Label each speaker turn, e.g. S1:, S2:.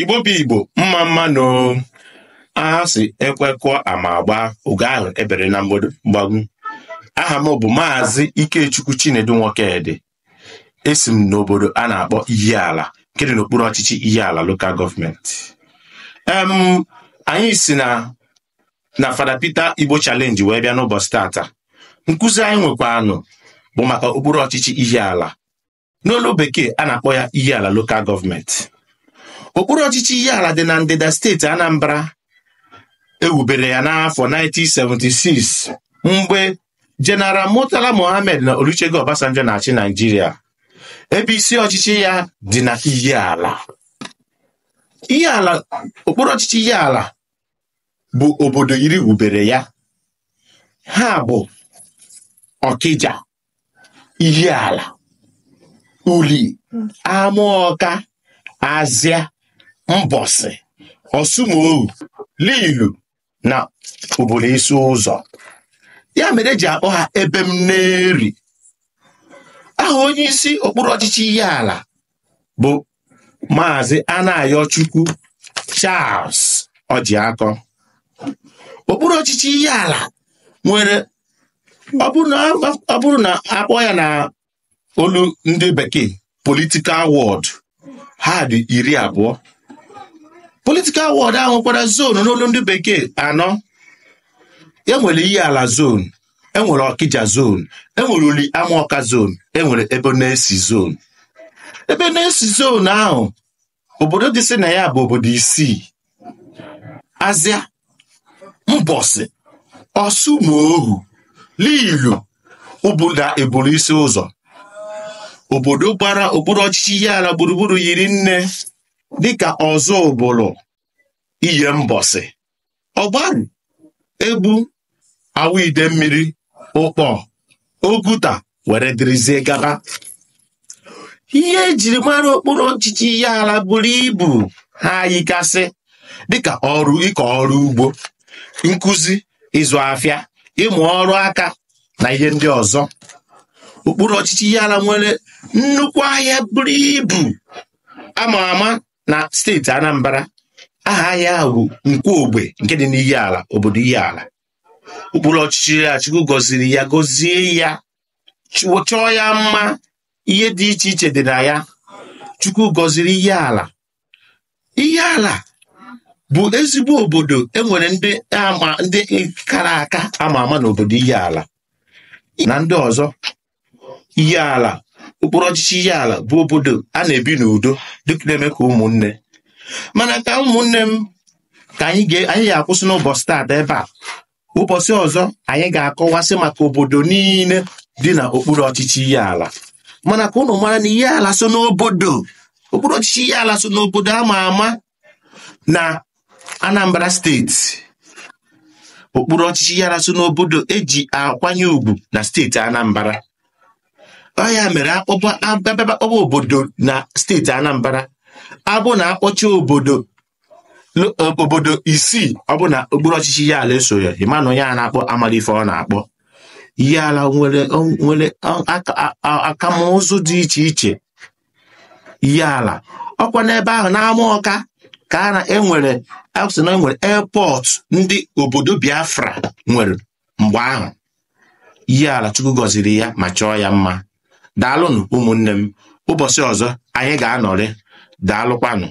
S1: igbo bụ igbo mma mma nọ aha si ekwekọ ama agba oge ahụ ebere na mgbagu aha m bụ maazị ikechukwu chinedu nwokedị esi m n'obodo a na-akpọ Ihiala nke dị n'okpuru ọchịchị Ihiala lokal gọọmenti em anyị si na na Fada Peter Igbo chalenji wee bịa n'ụbọchị tata nkụzi anyị nwekwanụ bụ maka okpuru ọchịchị ala n'olu bekee a na-akpọ ya Ihiala lokal gọọmenti okpuru ọchịchị ihe ala dị na ndịda steeti Anambra ewubere ya n'afọ 1976 mgbe General Murtala Mohammed na Olusegun Obasanjo na-achị Naijiria ebe isi ọchịchị ya dị na Ihe ala okpuru ọchịchị ala bụ obodo iri wubere ya ha bụ Ọkịja ala, Uli Amaọka Azịa Mbọsị, Ọsụmohu, Lilu na obodo isi ụzọ ya mere eji akpọ ha ebe m na-eri aha onye isi okpuru ọchịchị ihe ala bụ maazị Anayochukwu Charles Ọjịakọ okpuru ọchịchị ihe ala nwere ọ bụrụ na akpọ ya na olu ndị bekee politikal wọd ha dị iri abụọ politikal wọd ahụ nwekwara zonu n'olu ndị bekee anọ enwere iyi ala zonu enwere ọkịja zonu enwere uli amaọka zonu enwere ebe na-esi zonu ebe na-esi zonu ahụ obodo dị si na ya bụ obodo isii azịa mbọsị ọsụ na ụbụda eburu isi ụzọ obodo gbara okpuru ọchịchị ihe ala gburugburu yiri nne dịka ọzọ ụbụlụ iye mbọsị ọgbọrụ, egbu awa ide mmiri ụkpọ oguta were dịrịzie gaba ihe ejiri mara okpuru ọchịchị ihe ala buru ibu ha yikasị dịka ọrụ ịkọ ọrụ ugbo nkuzi, ịzụ afịa ịmụ ọrụ aka na ihe ndị ọzọ okpuru ọchịchị ihe ala nwere nnukwu ahịa buru ibu ama ama na steeti Anambra aha ahịa ahụ bụ nkwu ogbe nke dị n'iyi ala obodo iyi ala ụkpụrụ ọchịchị ya Chukwu gọziri ya gọzie ya chọọ ya mma ihe dị iche iche dị na ya Chukwu gọziri iyi ala iyi ala bụ ezigbo obodo enwere ndị ama ndị kara aka ama ama n'obodo iyi ala na ndị ọzọ iyi ala ụkpụrụ ọchịchị ihe ala bụ obodo a na-ebi n'udo dịka na-eme ka ụmụnne mana ka ụmụnne m ka anyị ga-akwụsị n'ụbọchị taata ebe a ụbọchị ọzọ anyị ga-akọwasị maka obodo niile dị na okpuru ọchịchị ihe ala mana ka ụnụ mara na ihe ala so n'obodo okpuru ọchịchị ihe ala so n'obodo a ma ama na Anambra steeti okpuru ọchịchị ihe ala so n'obodo eji akwanye ùgwù na steeti Anambra ọ mere akpọba obodo na steeti Anambra abụ na akpọcha obodo obodo isii ọ na okpuru ọchịchị ya ala eso ya ịmanụ a na-akpọ amalife ọ na-akpọ ya ala nwere nwere akamụzụ dị iche iche ya ala ọkwa n'ebe ahụ na-ama ka a na-enwere asị na enwere e airport ndị obodo Biafra nwere mgbe ahụ ya ala Chukwu gọziri ya ma chọọ ya mma daalụnụ ụmụnne m ụbọchị ọzọ anyị ga-anọrị daalụkwanụ